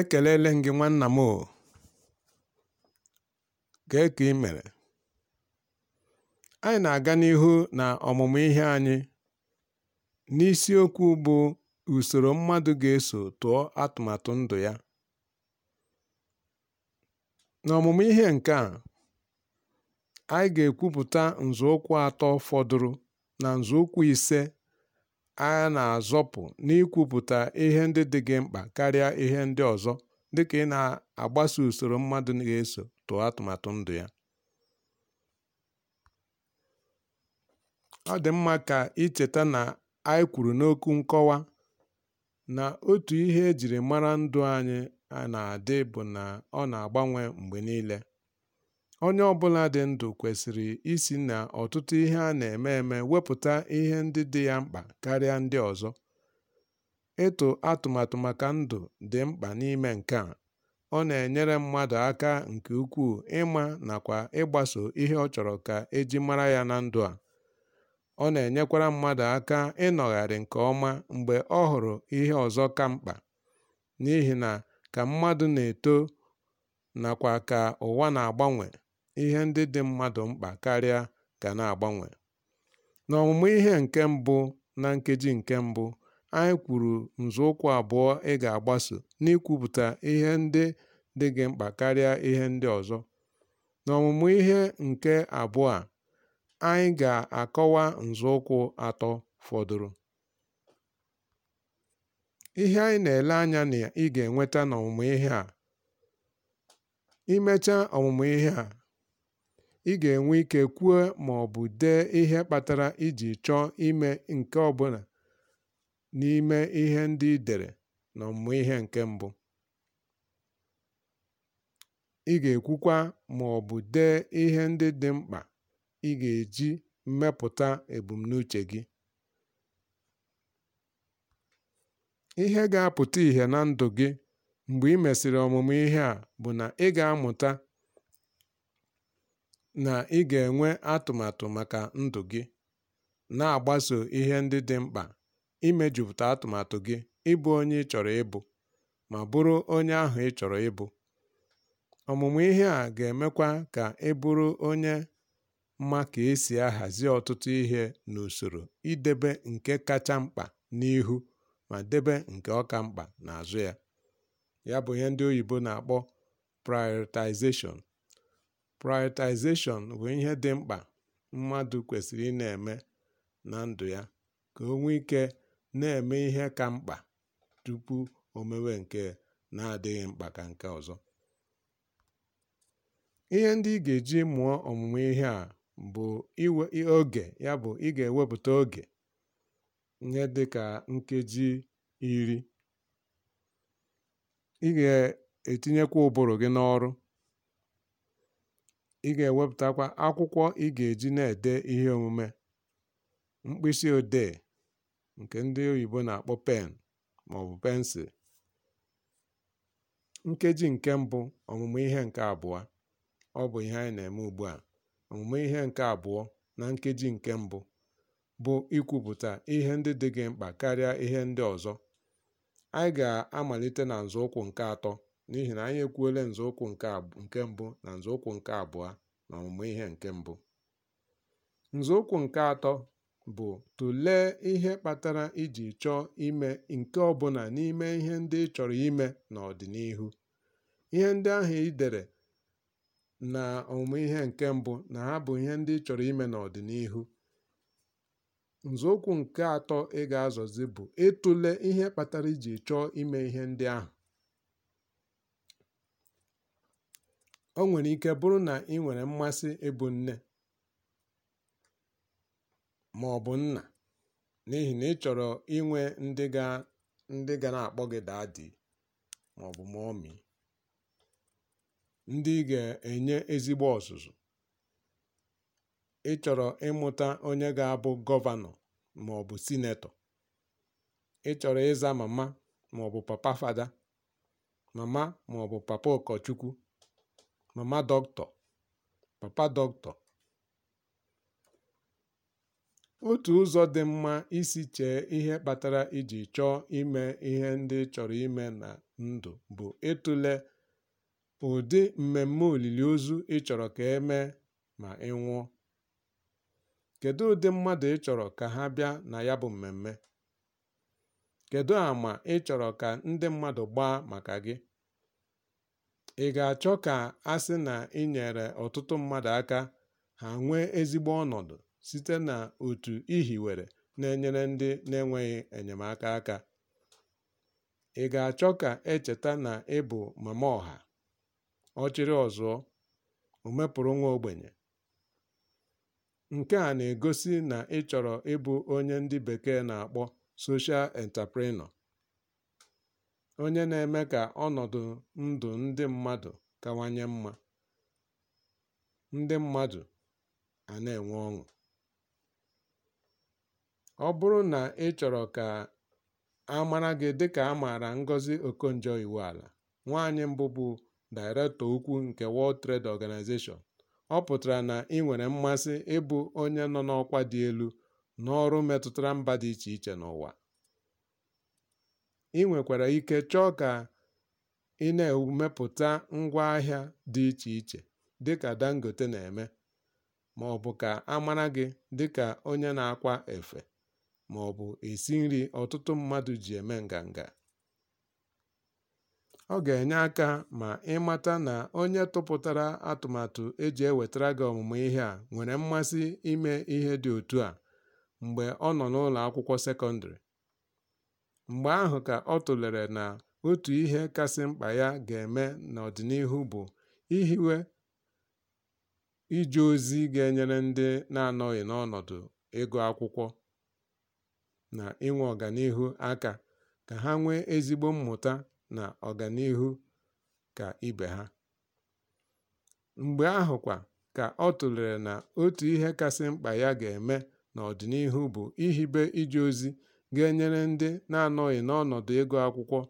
Ekelele m gị nwanna m o. Kee ka ị mere? Anyị na-aga n'ihu na ọmụmụ ihe anyị n'isiokwu bụ usoro mmadụ ga-eso tụọ atụmatụ ndụ ya. N'ọmụmụ ihe nke a, anyị ga-ekwupụta nzọụkwụ atọ fọdụrụ na nzọụkwụ ise a na-azọpụ n'ikwupụta ihe ndị dị gị mkpa karịa ihe ndị ọzọ, dịka ị na-agbaso usoro mmadụ ga-eso tụọ atụmatụ ndụ ya. Ọ dị mma ka icheta na anyị kwuru n'okwu nkọwa na otu ihe e mara ndụ anyị na-adị bụ na ọ na-agbanwe mgbe niile. Onye ọ bụla dị ndụ kwesịrị isi na ọtụtụ ihe a na-eme eme wepụta ihe ndị dị ya mkpa karịa ndị ọzọ. Ịtụ atụmatụ maka ndụ dị mkpa n'ime nke a. Ọ na-enyere mmadụ aka nke ukwuu ịma nakwa ịgbaso ihe ọ chọrọ ka e mara ya na ndụ a. Ọ na-enyekwara mmadụ aka ịnọgharị nke ọma mgbe ọ hụrụ ihe ọzọ ka mkpa, n'ihi na ka mmadụ na-eto nakwa ka ụwa na-agbanwe, ihe ndị dị mmadụ mkpa karịa ga na-agbanwe. N'ọmụmụ ihe nke mbụ na nkeji nke mbụ, anyị kwuru nzọụkwụ abụọ ị ga-agbaso n'ikwupụta ihe ndị dị gị mkpa karịa ihe ndị ọzọ. N'ọmụmụ ihe nke abụọ a, anyị ga-akọwa nzọụkwụ atọ fọdụrụ. Ihe anyị na-ele anya na ị ga-enweta n'ọmụmụ ihe a. Imecha ọmụmụ ihe a, ị ga-enwe ike kwuo ma ọ bụ dee ihe kpatara iji chọọ ime nke ọbụla n'ime ihe ndị ị dere ọmụmụ ihe nke mbụ. Ị ga-ekwukwa ma ọ bụ dee ihe ndị dị mkpa ị ga-eji mmepụta ebumnuche gị. Ihe ga-apụta ìhè na ndụ gị mgbe ị mesịrị ọmụmụ ihe a bụ na ị ga-amụta na ị ga-enwe atụmatụ maka ndụ gị, na-agbaso ihe ndị dị mkpa, imejupụta atụmatụ gị ịbụ onye ị chọrọ ịbụ, ma bụrụ onye ahụ ị chọrọ ịbụ. Ọmụmụ ihe a ga-emekwa ka ị bụrụ onye ma ka esi ahazi ọtụtụ ihe n'usoro idebe nke kacha mkpa n'ihu ma debe nke ọka mkpa n'azụ ya. Ya bụ ihe ndị oyibo na-akpọ prioritization. Prioritization bụ ihe dị mkpa mmadụ kwesịrị ị na-eme na ndụ ya ka o nwee ike na-eme ihe ka mkpa tupu o mewe nke na-adịghị mkpa ka nke ọzọ. Ihe ndị ị ga-eji mụọ ọmụmụ ihe a bụ oge ya bụ ị ga-ewepụta oge ihe dị ka nkeji iri. Ị ga-etinyekwa ụbụrụ gị n'ọrụ. ị ga-ewepụtakwa akwụkwọ ị ga-eji na ede ihe omume, mkpịsị odee nke ndị oyibo na-akpọ pen maọbụ pensil; Nkeji nke mbụ omume ihe nke abụọ ọ bụ ihe anyị na-eme ugbu a. omume ihe nke abụọ na nkeji nke mbụ bụ ikwupụta ihe ndị dị gị mkpa karịa ihe ndị ọzọ, Anyị ga-amalite na nzọụkwụ nke atọ n'ihi na anyị ekwuola nzọụkwụ nke mbụ na nzọụkwụ nke abụọ na ọmụmụ ihe nke mbụ nzọụkwụ nke atọ bụ tụlee ihe kpatara iji chọọ ime nke ọbụla n'ime ihe ndị ị chọrọ ime n'ọdịnihu ihe ndị ahụ ị dere na ọmụmụ ihe nke mbụ na ha bụ ihe ndị ị chọrọ ime n'ọdịnihu nzọụkwụ nke atọ ị ga-azọzi bụ ịtụle ihe kpatara iji chọọ ime ihe ndị ahụ O nwere ike bụrụ na ị nwere mmasị ịbụ nne ma ọ bụ nna n'ihi na ị chọrọ inwe ndị ga na-akpọ gị daddy maọbụ mommy, ndị ga-enye ezigbo ọzụzụ. Ị chọrọ ịmụta onye ga-abụ gọvanọ maọbụ sinetọ. Ị chọrọ ịza mama maọbụ papa fada, mama maọbụ papa ụkọchukwu. mama dọkịta, papa dọkịta. Otu ụzọ dị mma isi chee ihe kpatara iji chọọ ime ihe ndị ị chọrọ ime na ndụ bụ ịtụle ụdị mmemme olili ozu ị chọrọ ka e ma ị nwụọ. Kedụ ụdị mmadụ ị chọrọ ka ha bịa na ya bụ mmemme? kedu àmà ị chọrọ ka ndị mmadụ gbaa maka gị? Ị ga-achọ ka a sị na ị nyere ọtụtụ mmadụ aka ha nwee ezigbo ọnọdụ site n'otu otu ihiwere na-enyere ndị na-enweghị enyemaka aka? Ị ga-achọ ka e na ị bụ mama ọha, ọchịrị ọzọ, omepụrụ nwa ogbenye? Nke a na-egosi na ị chọrọ ịbụ onye ndị bekee na-akpọ 'social entrepreneur' onye na-eme ka ọnọdụ ndụ ndị mmadụ kawanye mma, ndị mmadụ a na-enwe ọṅụ. Ọ bụrụ na ị chọrọ ka a mara gị dịka a maara Ngozi Okonjo-Iweala, nwaanyị mbụ bụ Daịrektọ Ukwu nke World Trade Organization, ọ pụtara na ị nwere mmasị ịbụ onye nọ n'ọkwa dị elu n'ọrụ metụtara mba dị iche iche n'ụwa. ị nwekwara ike chọọ ka ị na-emepụta ngwaahịa dị iche iche dịka Dangote na-eme, ma maọbụ ka a mara gị dịka onye na-akwa efe bụ esi nri ọtụtụ mmadụ ji eme nganga. Ọ ga-enye aka ma ị mata na onye tụpụtara atụmatụ e ewetara gị ọmụmụ ihe a nwere mmasị ime ihe dị otu a mgbe ọ nọ n'ụlọ akwụkwọ sekọndrị. Mgbe ahụ ka ọ tụlere na otu ihe kasị mkpa ya ga-eme n'ọdịnihu bụ ihiwe ije ozi ga-enyere ndị na-anọghị n'ọnọdụ ego akwụkwọ na inwe ọganihu aka, ka ha nwee ezigbo mmụta na ọganihu ka ibe ha. Mgbe ahụ kwa ka ọ tụlere na otu ihe kasị mkpa ya ga-eme n'ọdịnihu bụ ihibe ije ozi ga-enyere ndị na-anọghị n'ọnọdụ ịgụ akwụkwọ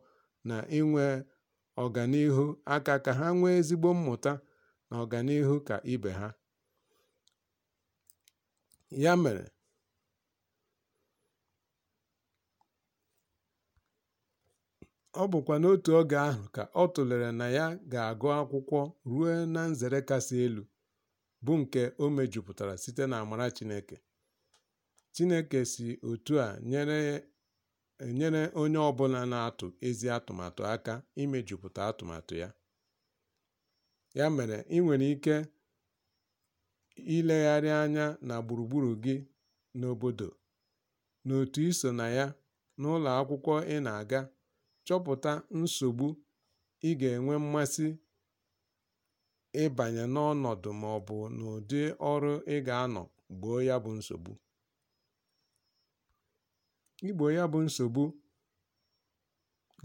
na inwe ọganihu aka ka ha nwee ezigbo mmụta na ọganihu ka ibe ha. Ya mere, ọ bụkwa n'otu oge ahụ ka ọ tụlere na ya ga-agụ akwụkwọ ruo na nzere kasị elu, bụ nke o mejupụtara site n'amara Chineke. Chineke si otu a nyere onye ọbụla na-atụ ezi atụmatụ aka imejupụta atụmatụ ya. Ya mere, ị nwere ike ilegharị anya na gburugburu gị n'obodo, n'otu i na ya, n'ụlọ akwụkwọ ị na-aga, chọpụta nsogbu ị ga-enwe mmasị ịbanye n'ọnọdụ maọbụ n'ụdị ọrụ ị ga-anọ gboo ya bụ nsogbu. Igbo ya bụ nsogbu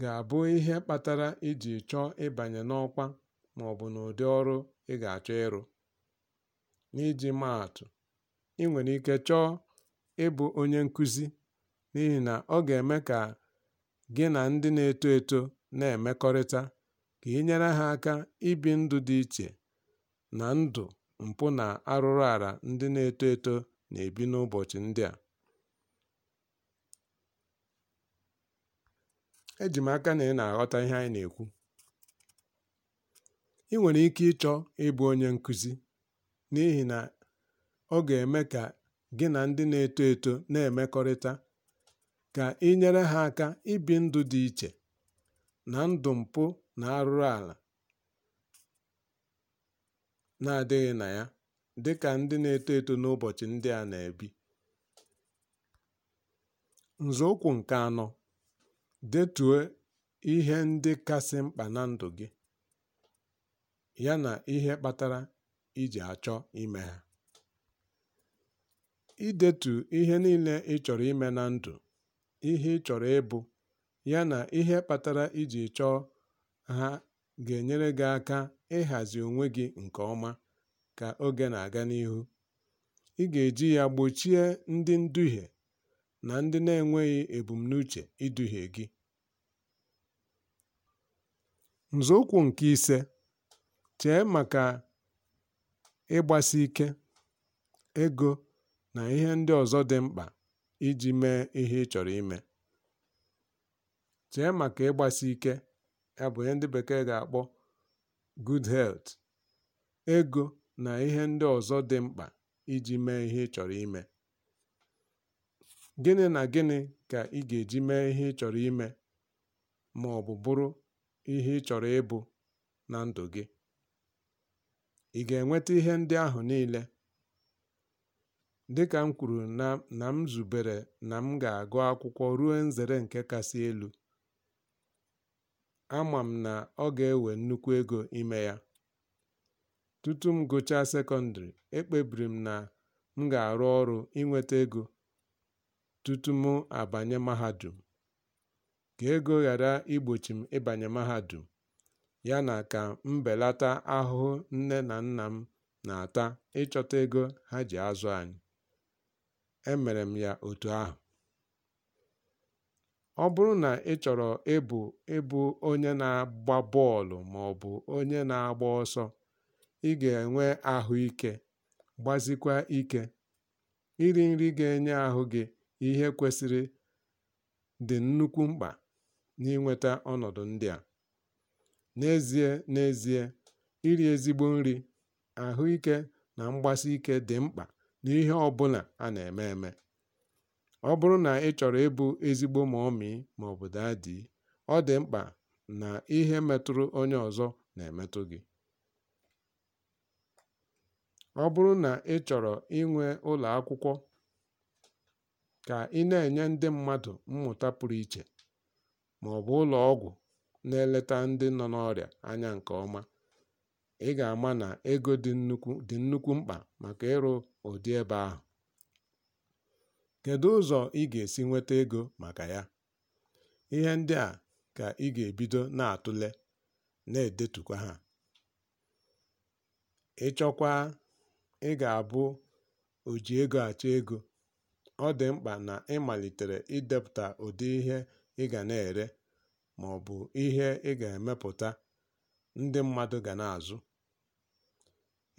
ga-abụ ihe kpatara iji chọọ ịbanye n'ọkwa maọbụ n'ụdị ọrụ ị ga-achọ ịrụ. N'iji maa ị nwere ike chọọ ịbụ onye nkụzi n'ihi na ọ ga-eme ka gị na ndị na-eto eto na-emekọrịta, ka ị nyere ha aka ibi ndụ dị iche na ndụ mpụ na arụrụala ndị na-eto eto na-ebi n'ụbọchị ndị a. Eji m aka na ị na-aghọta ihe anyị na-ekwu. Ị nwere ike ịchọ ịbụ onye nkụzi n'ihi na ọ ga-eme ka gị na ndị na-eto eto na-emekọrịta, ka ị nyere ha aka ibi ndụ dị iche na ndụ mpụ na arụrụ ala na-adịghị na ya, dị ka ndị na-eto eto n'ụbọchị ndị a na-ebi. Nzọụkwụ nke anọ Detuo ihe ndị kasị mkpa na ndụ gị, yana ihe kpatara iji achọ ime ha. Idetu ihe niile ị chọrọ ime na ndụ, ihe ị chọrọ ịbụ, yana ihe kpatara iji chọọ ha ga-enyere gị aka ịhazi onwe gị nke ọma ka oge na-aga n'ihu. Ị ga-eji ya gbochie ndị nduhie na ndị na-enweghị ebumnuche iduhie gị. Nzọụkwụ nke ise, chee maka ịgbasi ike, ego na ihe ndị ọzọ dị mkpa iji mee ihe ga-akpọ good ego na ihe ndị ọzọ dị mkpa iji mee ihe ị chọrọ ime. Gịnị na gịnị ka ị ga-eji mee ihe ị chọrọ ime bụ bụrụ ihe ị chọrọ ịbụ na ndụ gị? Ị ga-enweta ihe ndị ahụ niile? Dịka m kwuru na m zubere na m ga-agụ akwụkwọ ruo nzere nke kasị elu, ama m na ọ ga-ewe nnukwu ego ime ya. Tutu m gụchaa sekọndịrị, ekpebiri m na m ga-arụ ọrụ inweta ego tutu m abanye mahadum, ka ego ghara igbochi m ịbanye mahadum, yana ka m belata ahụhụ nne na nna m na-ata ịchọta ego ha ji azụ anyị. Emere m ya otu ahụ. Ọ bụrụ na ị chọrọ ịbụ ịbụ onye na-agba bọọlụ maọbụ onye na-agba ọsọ, ị ga-enwe ahụike gbazikwa ike. Iri nri ga-enye ahụ gị ihe kwesịrị dị nnukwu mkpa n'inweta ọnọdụ ndị a. N'ezie N'ezie, iri ezigbo nri, ahụike na mgbasi ike dị mkpa n'ihe ọbụla a na-eme eme. Ọ bụrụ na ị chọrọ ịbụ ezigbo ma mọmị maọbụ daadị, ọ dị mkpa na ihe metụrụ onye ọzọ na-emetụ gị. Ọ bụrụ na ị chọrọ inwe ụlọ akwụkwọ ka ị na-enye ndị mmadụ mmụta pụrụ iche ma ọ bụ ụlọ ọgwụ na-eleta ndị nọ n'ọrịa anya nke ọma, ị ga-ama na ego dị nnukwu mkpa maka ịrụ ụdị ebe ahụ. Kedu ụzọ ị ga-esi nweta ego maka ya? Ihe ndị a ka ị ga-ebido na-atụle, na-edetukwa ha. ịchọkwa ị ga-abụ ego achọ ego ọ dị mkpa na ị malitere idepụta ụdị ihe ị ga na-ere ma ọ bụ ihe ị ga-emepụta ndị mmadụ ga na-azụ.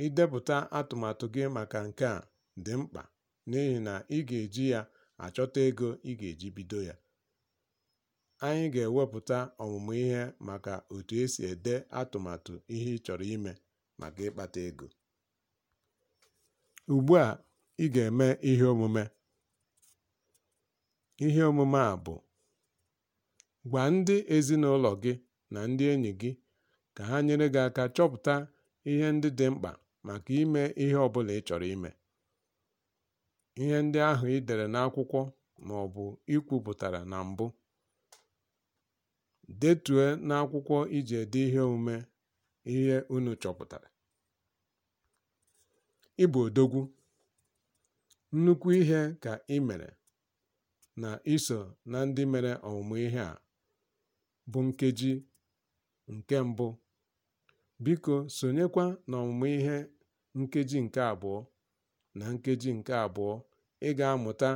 Idepụta atụmatụ gị maka nke a dị mkpa n'ihi na ị ga-eji ya achọta ego ị ga-eji bido ya. Anyị ga-ewepụta ọmụmụ ihe maka otu esi ede atụmatụ ihe ị chọrọ ime maka ịkpata ego. Ugbu a, ị ga-eme ihe omume. Ihe omume a bụ: Gwa ndị ezinụlọ gị na ndị enyi gị ka ha nyere gị aka chọpụta ihe ndị dị mkpa maka ime ihe ọ bụla ị chọrọ ime. Ihe ndị ahụ i dere n'akwụkwọ ma ọ bụ i kwupụtara na mbụ, detue n'akwụkwọ iji ede ihe omume ihe unu chọpụtara. Ị odogwu. Nnukwu ihe ka ị mere na iso na ndị mere ọmụmụ ihe a bụ nkeji nke mbụ biko sonyekwa n'ọmụmụ ihe nkeji nke abụọ na nkeji nke abụọ ị ga-amụta